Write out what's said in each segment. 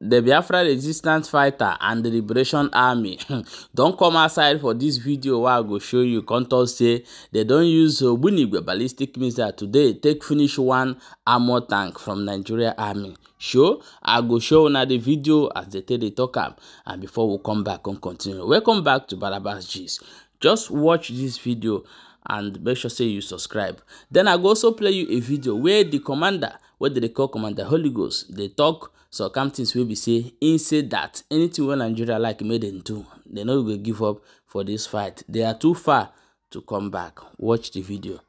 The Biafra Resistance Fighter and the Liberation Army don come outside for dis video wey I go show you come talk say dem don use Ogbunigwe ballistic missile today take finish one armor tank from Nigeria Army. Sure, I go show una the video as dey take dey talk am and before we come back come continue. Welcome back to Barabas Gist. Just watch dis video and make sure say you subscribe. Then I go also play you a video where the commander, wey dem dey call Commander Holy Ghost, dey talk so come things wey be say im say dat anytin wey nigeria like make dem do dem no go give up for dis fight they are too far to come back watch the video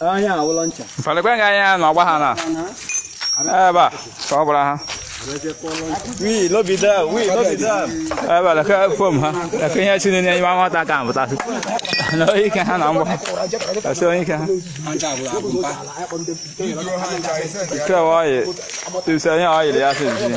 anyị awụlọ ncha. nga anyị anọ ọgba ha na. Ebe a, eh, ka ọ bụrụ ha. Oui, l'obida, oui, l'obida. Ah bah la ka fom ha. La ka ya chine ni ma ma ta ka ma ta. No i ka ha na mo. Ta so i ka. Ka wa ye. Tu sa ya ai le ya se ji.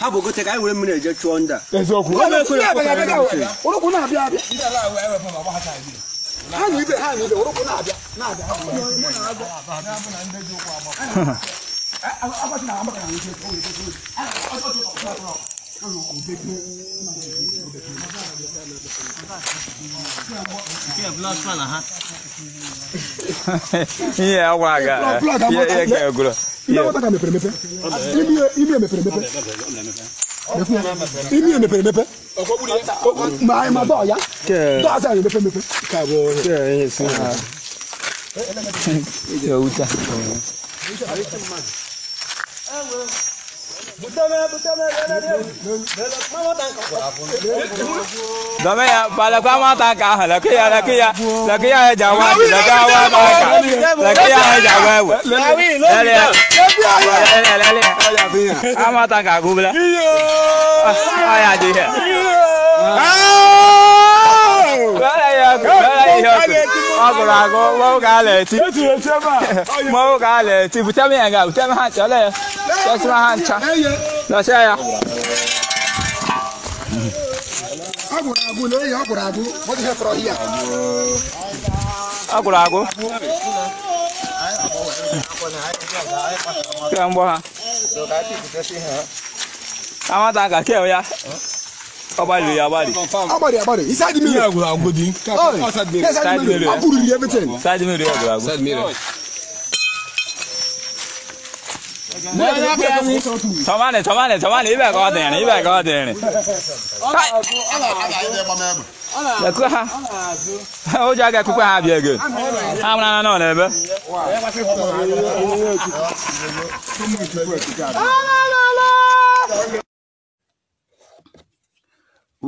Ha bo go te ka wure mu na je chuonda. Ezo ku. Oro ku na bia bia. Ila la wa wa fom ba ha ta ji. ha na ibe ha na ibe orokwu na-abịa na-abịa ihe a gwa aga ihe ka egwuro ime mepere emepe ọkọ wuli dẹ. maa ye ma bọ ya. kẹ dọw ta yẹrẹ bẹ fẹn bẹ fẹ. k'a bọ kẹ n ye sin na. kẹ u ta. dọmẹ ya bala ko a ma ta k'a hẹlẹ kiya la kiya la kiya ye jagoya la kiya wa ma kan la kiya ye jagoya wo ama ta ka gubla aya je he ọgụrụ agụ mọwụ ka ala eti mọwụ ka ala eti bute m ya nga bute m ha ncha ole ya chọsịm ha ncha nọchịa ya ọgụrụ agụ na eyi ọgụrụ agụ ọgụrụ agụ kí wọn bọ ha àwọn ta kà kí ẹ ya abali abali. abali abali inside mirror. mirror go go di. outside mirror. side mirror. abu riri everything. side mirror go go. side mirror. tọ́mánì tọ́mánì tọ́mánì ibẹ̀ kọ́ dẹ̀rín ibẹ̀ kọ́ dẹ̀rín. ụjọ aga ekukwe ha bịa ego ha mara na ọ na-ebe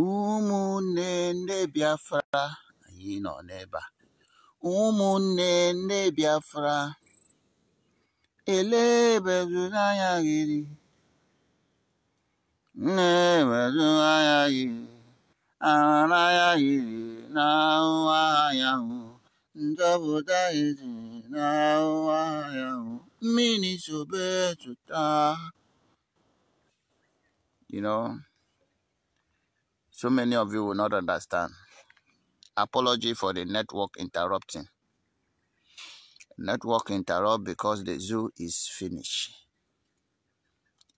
ụmụnne ndị Biafra anyị nọ n'ebe a ụmụnne ndị Biafra elebezụ anya gị nne ewezu anya gị You know, so many of you will not understand. Apology for the network interrupting. Network interrupt because the zoo is finished.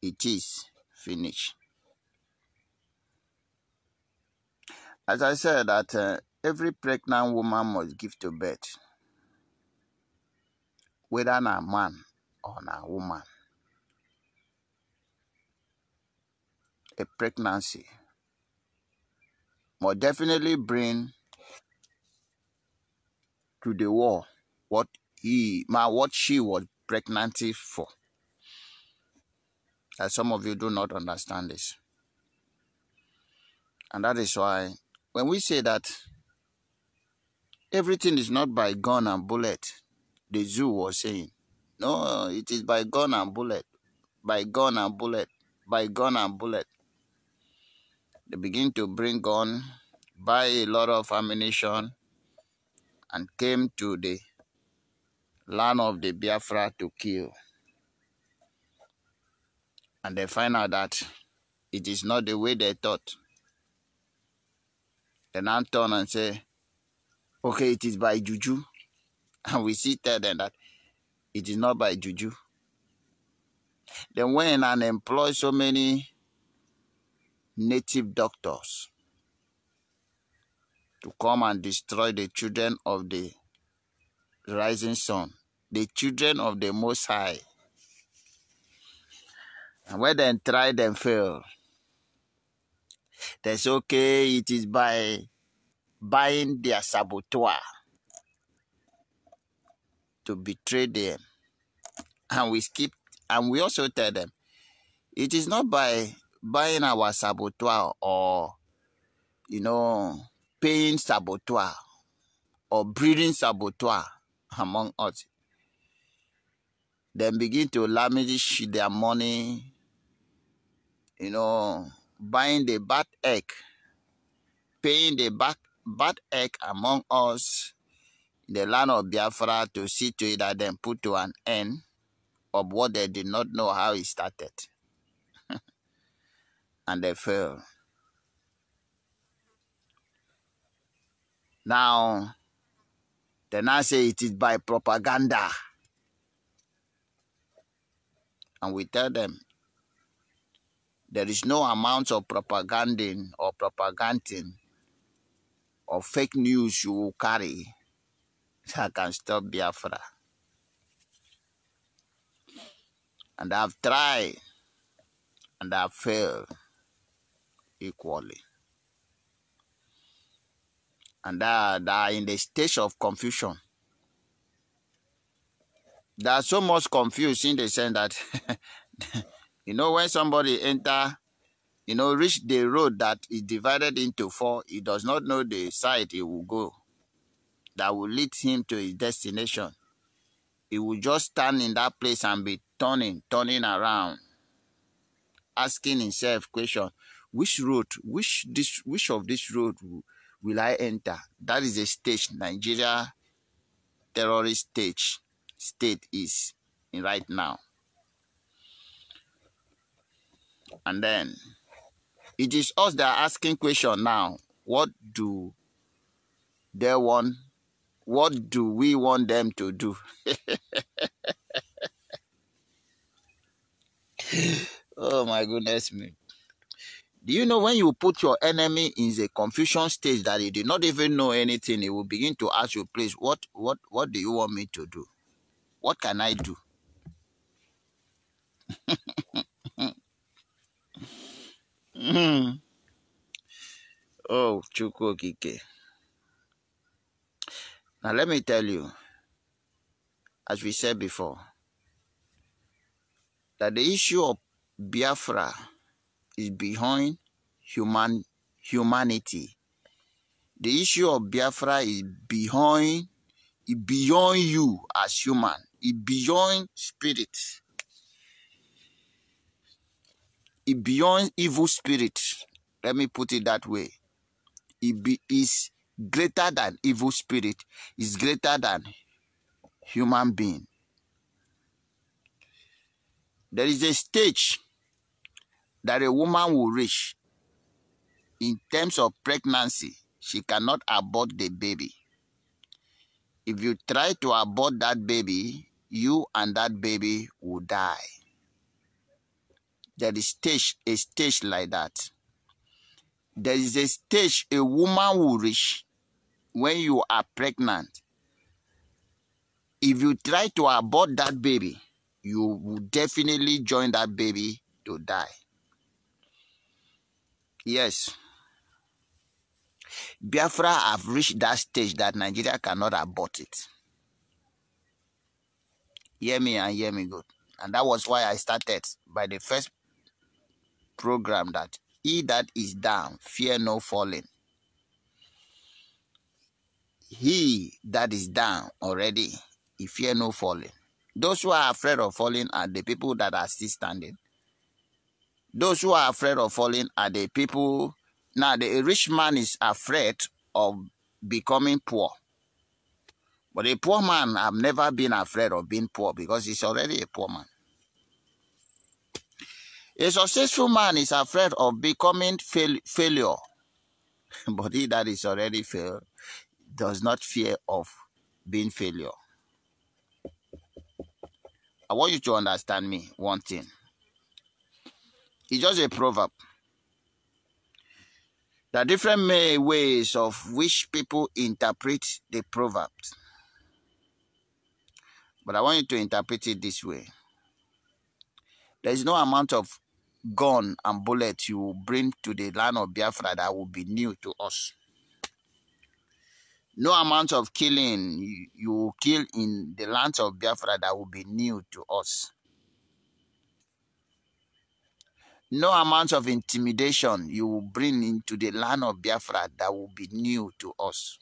It is finished. As I said, that uh, every pregnant woman must give to birth, whether na a man or na a woman. A pregnancy must definitely bring to the war what he, what she was pregnant for. As some of you do not understand this, and that is why when we say that everything is not by gun and bullet, the zoo was saying, no, it is by gun and bullet, by gun and bullet, by gun and bullet. They begin to bring gun, buy a lot of ammunition, and came to the land of the Biafra to kill. And they find out that it is not the way they thought. They I turn and say, okay, it is by juju. And we see tell them that it is not by juju. Then when and employ so many native doctors to come and destroy the children of the rising sun, the children of the Most High. And when they try and fail. They say, okay, it is by buying their saboteur to betray them. And we skip, and we also tell them, it is not by buying our saboteur or, you know, paying saboteur or breeding saboteur among us. Then begin to lavish their money, you know, buying the bad egg, paying the bad, bad egg among us in the land of Biafra to see to it that then put to an end of what they did not know how it started. and they failed. Now, they now say it is by propaganda. And we tell them there is no amount of propaganding or propaganding or fake news you will carry that can stop Biafra. And I've tried and I've failed equally. And they are in the stage of confusion. They are so much confused in the sense that You know, when somebody enter, you know, reach the road that is divided into four, he does not know the side he will go that will lead him to his destination. He will just stand in that place and be turning, turning around, asking himself question, which road, which this, which of this road will I enter? That is a stage Nigeria terrorist stage state is in right now. And then it is us that are asking question now. What do they want? What do we want them to do? oh my goodness me. Do you know when you put your enemy in the confusion stage that he did not even know anything, he will begin to ask you, please, what, what, what do you want me to do? What can I do? Hmm. Oh, Chukwu Okike. Now, let me tell you, as we said before, that the issue of Biafra is behind human humanity. The issue of Biafra is behind beyond you as human, beyond spirit. it beyond evil spirit. Let me put it that way. It be, is greater than evil spirit. Is greater than human being. There is a stage that a woman will reach in terms of pregnancy. She cannot abort the baby. If you try to abort that baby, you and that baby will die there is stage a stage like that there is a stage a woman will reach when you are pregnant if you try to abort that baby you will definitely join that baby to die yes biafra have reached that stage that nigeria cannot abort it hear me and hear me good and that was why i started by the first program that he that is down, fear no falling. He that is down already, he fear no falling. Those who are afraid of falling are the people that are still standing. Those who are afraid of falling are the people. Now, the rich man is afraid of becoming poor. But a poor man, I've never been afraid of being poor because he's already a poor man. A successful man is afraid of becoming fail- failure, but he that is already failed does not fear of being failure. I want you to understand me one thing. It's just a proverb. There are different ways of which people interpret the proverbs. But I want you to interpret it this way. There is no amount of gun and bullet you will bring to the land of Biafra that will be new to us. No amount of killing you, will kill in the land of Biafra that will be new to us. No amount of intimidation you will bring into the land of Biafra that will be new to us.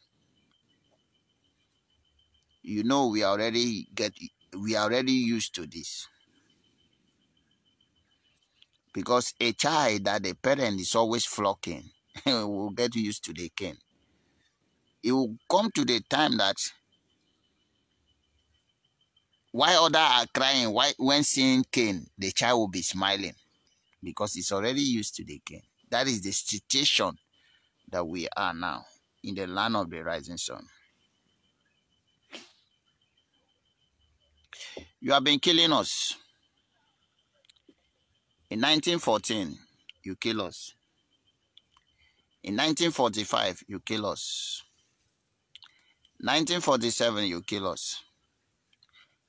You know we already get we already used to this. Because a child that the parent is always flocking will get used to the cane. It will come to the time that why other are crying, why when seeing cane, the child will be smiling because it's already used to the cane. That is the situation that we are now in the land of the rising sun. You have been killing us. In 1914, you kill us. In 1945, you kill us. 1947, you kill us.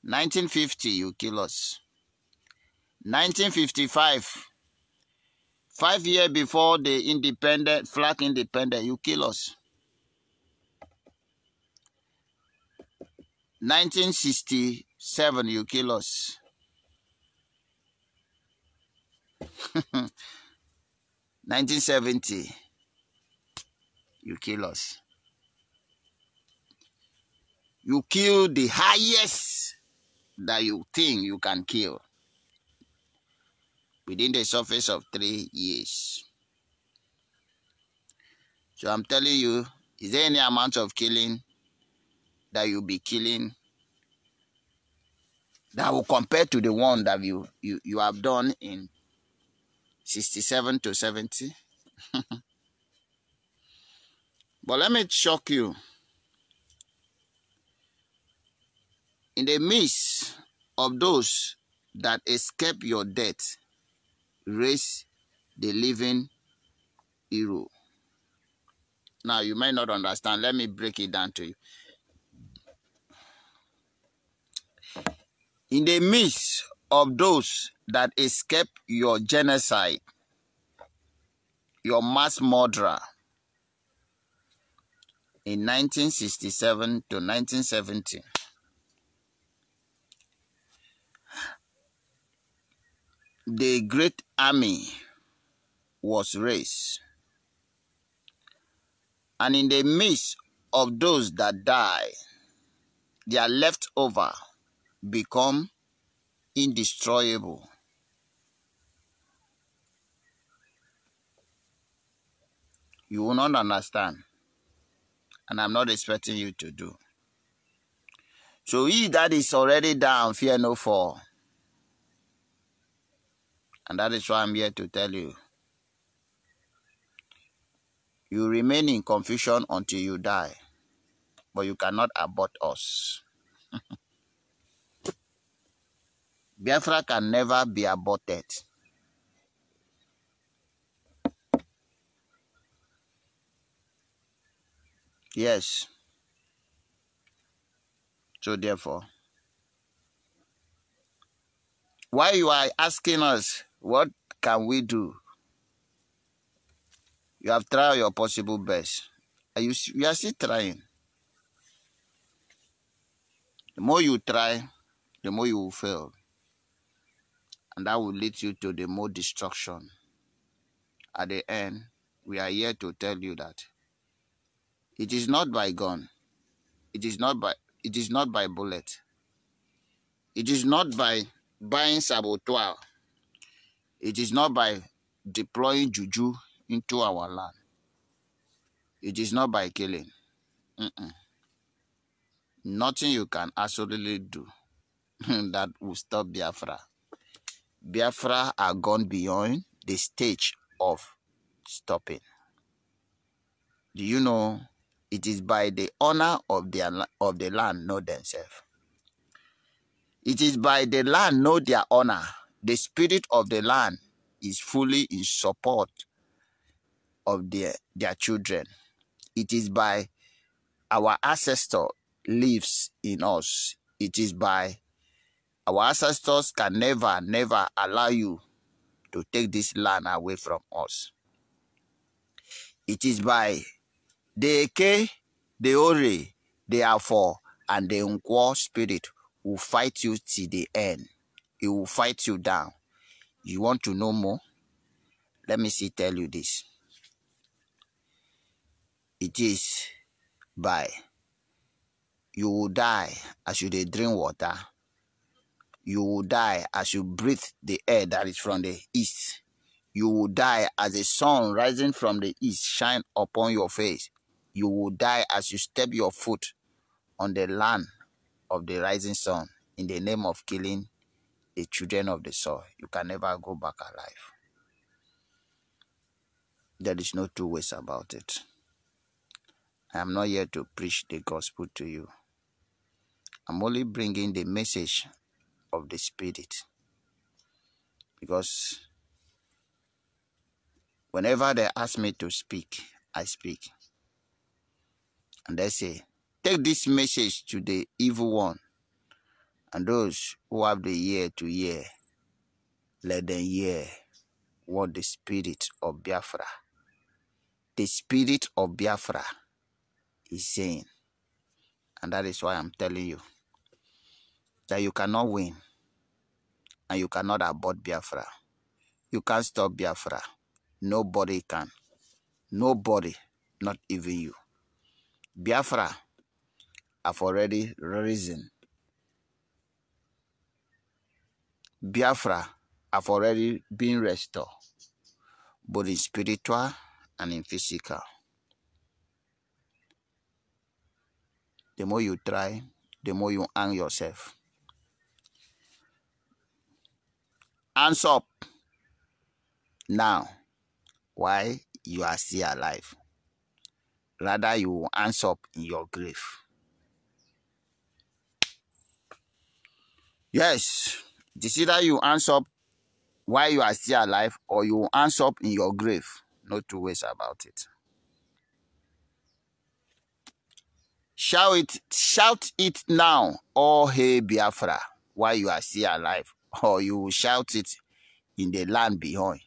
1950, you kill us. 1955, five years before the independent, flag independent, you kill us. 1967, you kill us. 1970, you kill us. You kill the highest that you think you can kill within the surface of three years. So I'm telling you, is there any amount of killing that you'll be killing that will compare to the one that you, you, you have done in 67 to 70. but let me shock you. In the midst of those that escape your death, raise the living hero. Now, you may not understand. Let me break it down to you. In the midst of those that escape your genocide, your mass murderer in 1967 to 1970. The great army was raised. And in the midst of those that die, their leftover become Indestructible. You will not understand. And I'm not expecting you to do. So he that is already down, fear no fall. And that is why I'm here to tell you. You remain in confusion until you die, but you cannot abort us. Biafra can never be aborted. Yes. So therefore, why you are asking us, what can we do? You have tried your possible best. Are you, you are still trying. The more you try, the more you will fail and that will lead you to the more destruction. At the end, we are here to tell you that it is not by gun, it is not by it is not by bullet, it is not by buying saboteur, it is not by deploying juju into our land. It is not by killing. Mm -mm. Nothing you can absolutely do that will stop Biafra. Biafra are gone beyond the stage of stopping. Do you know it is by the honor of their of the land not themselves? It is by the land not their honor. The spirit of the land is fully in support of their, their children. It is by our ancestor lives in us. It is by Our ancestors can never, never allow you to take this land away from us. It is by the Eke, the Ori, the Afo, and the Nkwo spirit will fight you till the end. It will fight you down. You want to know more? Let me see tell you this. It is by you will die as you drink water. You will die as you breathe the air that is from the east. You will die as the sun rising from the east shine upon your face. You will die as you step your foot on the land of the rising sun in the name of killing the children of the soil. You can never go back alive. There is no two ways about it. I am not here to preach the gospel to you. I'm only bringing the message of the Spirit. Because whenever they ask me to speak, I speak. And they say, Take this message to the evil one and those who have the ear to hear, let them hear what the spirit of Biafra, the spirit of Biafra is saying. And that is why I'm telling you that you cannot win and you cannot abort Biafra. You can't stop Biafra. Nobody can. Nobody, not even you. Biafra have already risen. Biafra have already been restored, both in spiritual and in physical. The more you try, the more you hang yourself. hands up now Why you are still alive rather you will hands up in your grave yes it's either you hands up while you are still alive or you will hands up in your grave no two ways about it shout it shout it now oh hey biafra Why you are still alive or you will shout it in the land beyond.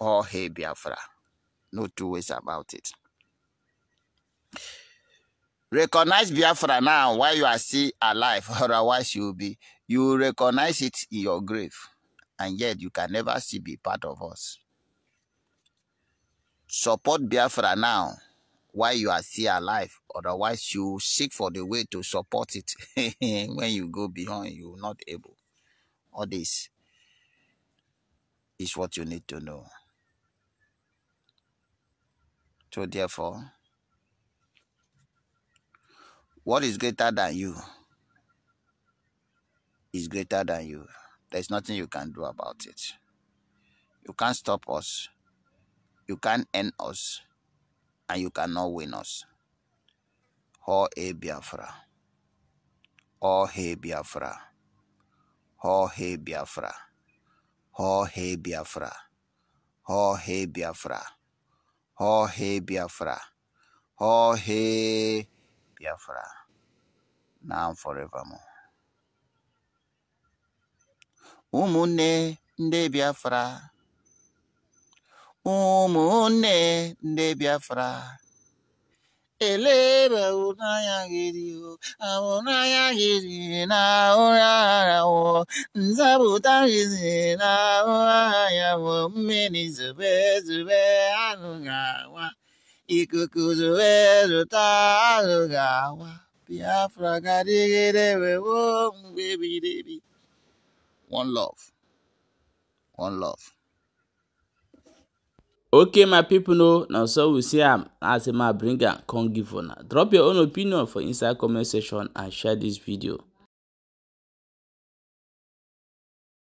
All hail Biafra. No two ways about it. Recognize Biafra now while you are still alive, otherwise you will be you will recognize it in your grave, and yet you can never see be part of us. Support Biafra now while you are still alive, otherwise you seek for the way to support it when you go beyond, you are not able. All this is what you need to know. So, therefore, what is greater than you is greater than you. There's nothing you can do about it. You can't stop us. You can't end us. And you cannot win us. Oh, hey, Biafra. Oh, hey, Biafra. Họhị Biafra! Họhị Biafra! Họhị Biafra! Họhị Biafra! Họhị Biafra! Now forevermore. Ụmụnne ndị Biafra! Ụmụnne ndị Biafra! eleba ụnanya gị dịho amụnanya gị na ụra ara wụ nzapụta na ụra ya wụ zube zube anu ikuku zube zụta anụ ga-awa biafra ga-adịgide wewo mgbe one love one love Okay, my people know now so we see am um, as my bringer can give one. Drop your own opinion for inside comment section and share this video.